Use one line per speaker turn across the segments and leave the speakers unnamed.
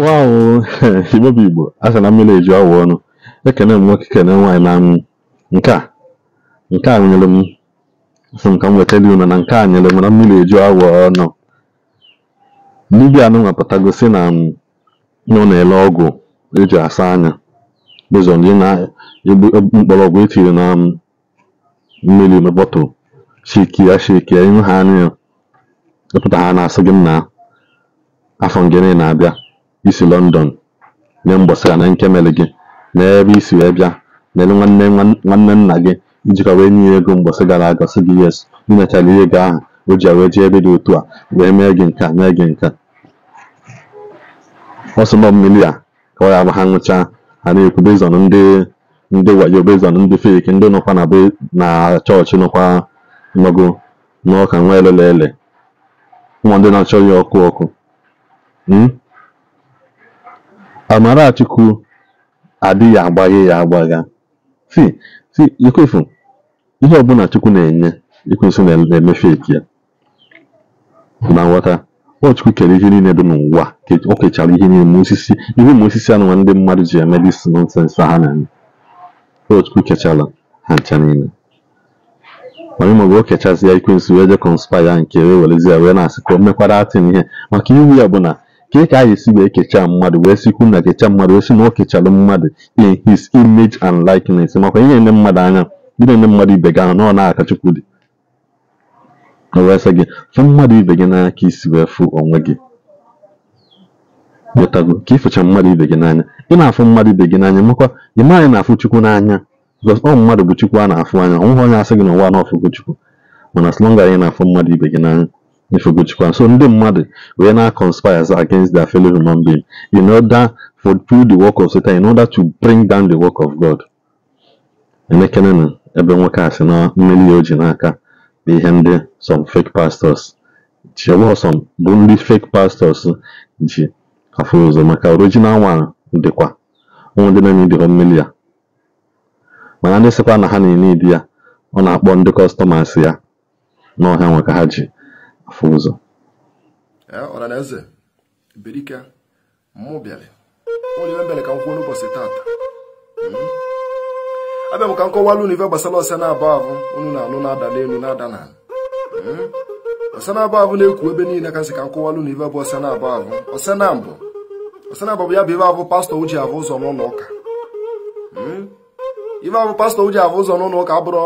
waw igbebụ igbo a sị na mmiri eju awọ ọnụ ekene m nwoke kene nwaanyị na anwụ nke a nke a nyere m sị m ka m weta dị unu na nke a nyere m na mmiri eju awọ ọnụ dibia anụnwa pụtago si na ọ na-ele ọgwụ eji asa anya bezọ ndị na-mgbọrọgwụ etiri na e mmiri bọtụl shikia shikia ihu ha anya ya ịpụta ha na-asị gị m na afọ ngene na-abịa isi London nye m gbasara na nkemele gị na ebe isi wee bịa lele nwanne nna gị iji ka wee nye ya ego mgbasa gara aga sị gị yes nyechara ihe ego ahụ o ji wee jee ebe dị otu a wee mee gị nke a mee gị nke a ọsọgbọ mmiri a ka ọ ya bụ ha nwụchaa ha na-ekwu bezon ndị ndị wayo bezon ndị fek ndị nọkwa na na chọọchị nọkwa nọgo n'ọka nwa elele ele ụmụ ndị na-achọ ya ọkụ ọkụ hmm? Amarachukwu adịghị agbaghe ya agbagha. See, see, Jokofu, ihe ọbụla Chukwu na-enye, Ekwensu na- na-emefeki ya. Na nghọta, ọ Chukwu kere ihe niile dị n'ụwa. O kechara ihe niile ma osisi, ihe ma osisi na ndị mmadụ ji eme dis nọnsensị ha na-eme. Chukwu kechara ha ncha niile. Mana ịmaọbụ o kechazi ya Ekwensu wee je kọnspaya nke wee ya wee na-asị ka o mekwara atịn ihe maka iwu ya bụ na Ka ị e ka anyị si wee kechaa mmadụ wee sikwu na kecha mmadụ wee sị na ọ kechalụ mmadụ in his image and likeness makwa ihe na-ene mmadụ anya ndị na eme mmadụ ibe gị anya na ọ na-aka Chukwu dị o gị fụ mmadụ ibe gị n'anya ka isi wee fụ onwe gị wetago ka ịfụcha mmadụ ibe gị n'anya ị na-afụ mmadụ ibe gị n'anya makwa ị anyị na-afụ Chukwu n'anya because ọ mmadụ bụ Chukwu a na-afụ anya ọ nweghị onye asị gị na ụwa na-afụgo Chukwu mana slọnga long na-afụ mmadụ ibe gị n'anya Ifukuchukwu. So ndị mmadụ wee na conspires against their fellow human being in order for through the work of Satan in order to bring down the work of God. Emekene na ebe nwoke asị na mmeri oji n'aka bụ ihe ndị some fake pastors some bụ ndị fake pastors ji afọ ụzọ maka original nwara dịkwa ụmụ ndị na-eme mmeri ya mana ndị sịkwa na ha na-ene idi ya ọ na-akpọ ndị kọstọmas ya n'ọha nwe ka ha ji afọ ụzọ
ọhaneze berike mụ bịara onye ibe ka m kwuo tata hmm? abịa m ka m kọwalụ gbasara ọsa na-abụ ahụ unu na-anụ na-ada n'elu na-ada n'ala ọsa hmm? na-abụ na eku ebe niile ka nsị na na na ya bụ pastọ uji abụ ụzọ pastọ uji ụzọ n'ụlọ ụka abụrụ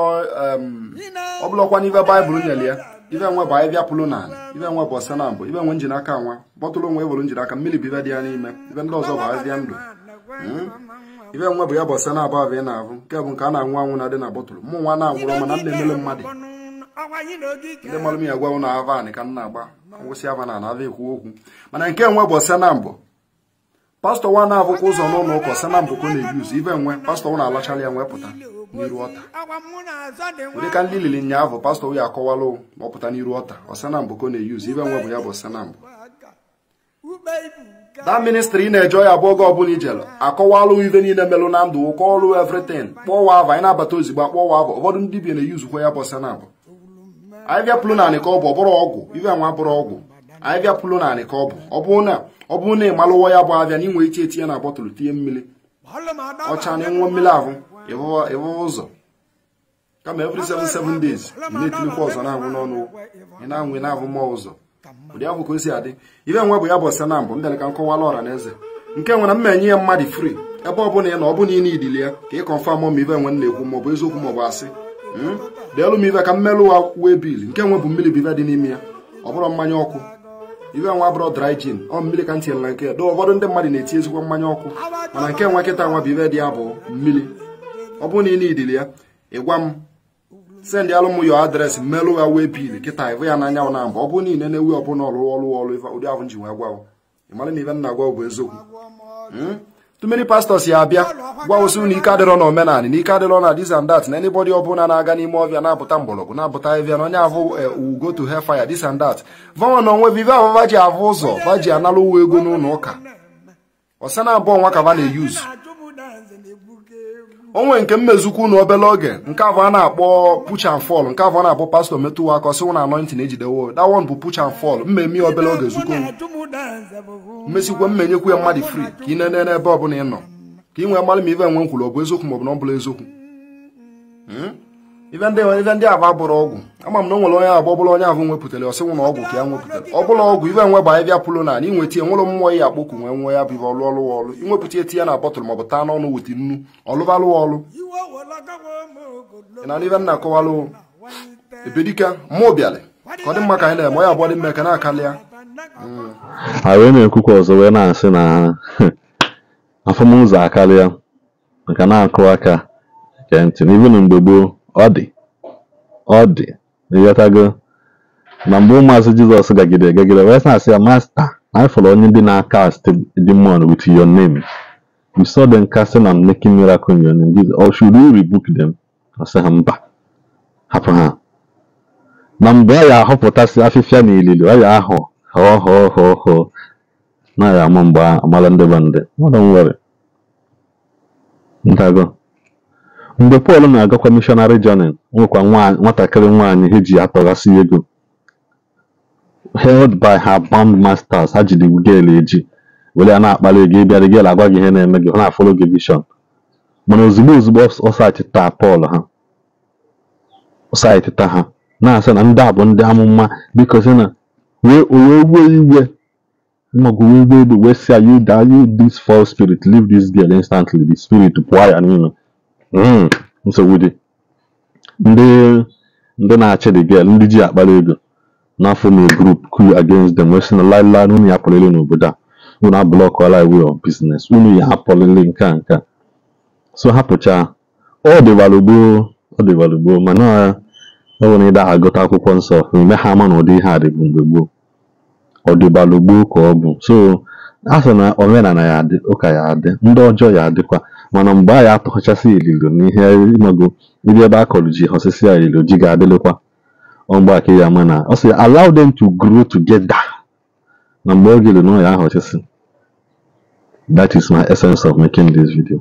ọbụlọkwa n'ife baịbụl nyere ya ibe nwe bụ anyị bịapụlụ n'ala ibe nwe bụ ọsa na mbụ ibe nwe njiri aka nwa kpọtụrụ nwe were njiri aka mmiri bụ ibe dị ya n'ime ibe ndị ọzọ bụ azịa ndụ hmm? ibe nwe bụ ya bụ ọsa na abụ abụ ị na-abụ nke bụ nke a na-anwụ anwụ na dị na bọtụlụ mụ nwa na-anwụrọ mana m na-emele mmadụ ndị malụ m ya gwanwụ na avan ka m na-agba ngwụsị ava na ana ava ekwu okwu mana nke nwe bụ ọsa na mbụ pastọ nwa na-abụkwa ụzọ n'ụlọ ụka ọsana mbụkọ na-ebi ụzọ ibe nwe pastọ nwa na-alachala ya nwee pụta n'iru ọta dịka ndị lili nyaahụ pastọ ya akọwala ma ọ pụta n'iru ọta ọsana mbụkọ na-eyi ụzọ ibe nwe bụ ya bụ ọsana mbụ da ministri ị na-eje ya bụ oge ọbụla ijelu akọwalụ ibe niile melụ na ndụ ụkọ ọrụ evritin kpọwa ava anyị na-abata ozigbo akpọwa ava ụfọdụ ndị bi na-eyi uzukwa ya bụ ọsana mbụ anyị bịapụlụ naanị ka ọ bụ ọ bụrụ ọgwụ ibe nwa bụrụ ọgwụ anyị bịapụlụ naanị ka ọ bụ ọ bụrụ na ọ bụrụ na ị ụwa ya bụ abịa na ị nwere na bọtụlụ tinye mmiri ọcha na ịṅụọ mmiri ahụ ịhụ ụzọ kama every 77 days na-etinyekwa ọzọ na-anwụ n'ọnụ ị na-anwụ na-ahụ mmụọ ụzọ ụdị ahụ ka o si adị bụ ya bụ ọsa na mbụ ndịla ka nkọwala ọra na eze nke nwere mma enye ya mmadụ fri ebe ọ bụla ị na ọ bụla ị idili ya ka ị kọnfam ma ibe nwe na-ekwu ma ọ bụ eziokwu ma ọ bụ asị hmm? deelu ka wa wee bil nke nwe bụ bụ dị ya ọ bụrụ mmanya ọkụ iwe nwa bụrụ dry gin ọ mmiri ka ntị na nke na ụfọdụ ndị mmadụ na-eti ezigbo mmanya ọkụ mana nke nwa nkịta nwa bụ ibe dị ya bụ mmiri ọ bụrụ na ị na-idili ya ị gwa m send alụ m yo adreesị melụ ya wee bil kịta ịbụ ya n'anyanwụ na mba ọ bụ niile na-ewu ọbụla ọlụ ọlụ ọlụ ụdị ahụ ji wee gwa ịmara na ibe nna gwa bụ eziokwu hmm? tụmeri pastọs ya abịa gwa ụsị na ike adịrọ na omenanị na ike adịrọ na dis and that na anybody ọbụla na-aga n'ime ọbịa na-apụta mgbọrọgwụ na-apụta ahịhịa na onye ahụ ugo eh, to hell fire dis and that vanwa na onwe vive ababa ji ahụ ụzọ va ji uwe ụwa ego n'ụlọ ụka ọsa na abụọ nwa na-eyuzu onwe nke mmezukwu na obele oge nke abụ a na-akpọ push and fall nke abụ a na-akpọ pastọ metụwa aka ọsị na anointing ejidewo dawon bụ push and fall mmemme obele oge zukọ mmesịkwa m nyekwu ya mmadụ fri ka ị nene n'ebe ọ bụla ị nọ ka ị nwee mmadụ ma ive nwe nkwuru ọ bụ eziokwu maọbụ na ọ bụla eziokwu hmm? ive ndị aba bụrụ ọgwụ ama m na o nwere onye abụ ọbụla onye abụ nwepụtara ọsịnwụ na ọgwụ ka ya nwepụtara ọbụla ọgwụ ive nwe bụ anyị bịa pụrụ na inweta ya nwụrụ mmụọ ya akpọku nwee nwe ya bụ ive ọlụ ọlụ ọlụ inwepụta eti ya na bọtụlụ maọbụ taa n'ọnụ weta nnu ọlụbalụ ọlụ ị na ive nna akọwalụ ebedika mụ bịalị ka ọ dị mma ka anyị na-eme onye abụọ dị mma ka na-akalị ya
A wee na-ekwukwa ọzọ wee na-asị na afọmụzọ akarịa maka na-akụ aka nke ntị n'ibi na mgbe gboo ọ dị ọ dị ịghọtago na mgbe ụmụazị jizọs gagide gagide wee na-asị ya masta na ịfọrọ onye ndị na-akast demon with your name you saw them casting and making miracle in your name Jesus or should you rebuke them ọ sị ha mba hapụ ha na mgbe a ya ahọpụtasị afịfịa na ilili ọ ya ahụ hoo hoo hoo hoo naghị ama mgbe amala ndị be ndị ndago mgbe Pọl na-agakwa mishọnarị jọnin nwekwa nwatakịrị nwaanyị ha ji atọghasị ego held by her band masters ha jiri gel eji were a na-akpali gị bịara gel agwa gị ihe na-eme gị na afọlọ gị vishọn mana ozugbo ozugbo ọsachịta Pọl ha ha na-asị na ndị a bụ ndị amụma biko si na wee wee wee iwe mmago wee wee iwe wee si ayu you this spirit leave this girl instantly the spirit pụọ ya n'ime hmm, nsogbu dị ndị ndị na-achị the girl ndị ji akpara ego n'afọ na group crew against them wee sị na laịlaị unu ya n'obodo a unu abụlọkọla iwe of business unu ya hapụlịrị nke a nke a so hapụcha ọ dịbalụgboo ọ dịbalụgboo mana ọ bụrụ na ịda agụta akwụkwọ nsọ ha ama na ụdị ihe a mgbe gboo ọdịbalụ gboo ka ọ bụ so a sị na omenala ya adị ụka ya adị ndị ọjọọ ya adịkwa mana mgbe a ya atụghachasị ililo n'ihe ịmago ndị ebe a kọlụ ji họsịsịa ililo ji ga-adịlịkwa ọmgbe aka ya mana, na ọ sị allow them to grow together na mgbe oge ililo ya ahọchịsị that is my essence of making this video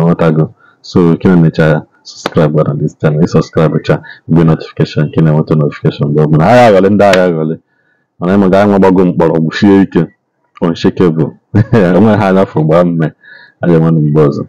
ọghọtago so na mecha ya subscribe gwara this channel ị subscribe cha mgbe notification kena enweta notification mgbe ọbụla agha aghọle ndị agha aghọle mana ịma gaa nwa gbago mkpọrọgwụ sie ike unshakable onwe ha n'afọ gbaa mme a ga-enwe mgbe ọzọ